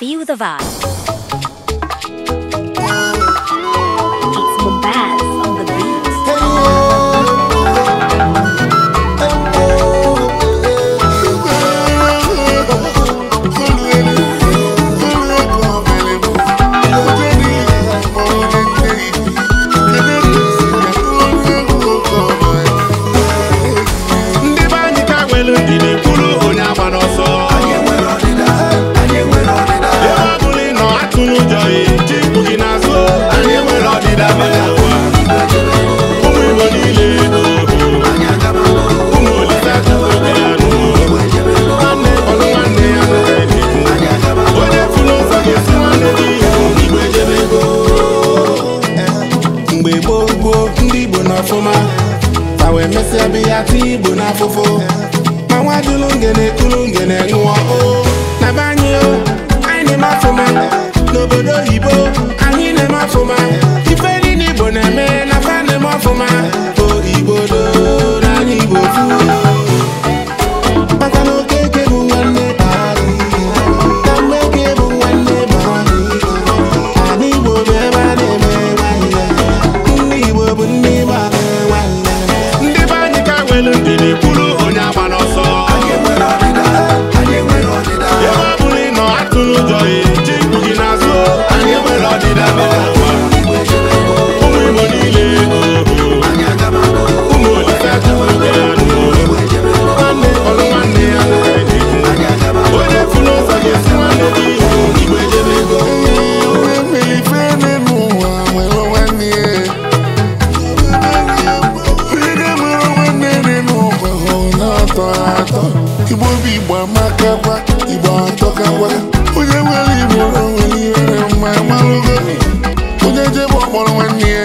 Feel the vibe. obi ya tụ igbo n'afụfụ ma nwa dụlụ ngene kụlụ ngene nwụọ o na be anyị o anyị na-eme afụma n'obodo oyibo anyị na-eme afụma akwa onye nwere igbo nwere ihe mma malụgo onye jebe ọkpọrọ nwanne ya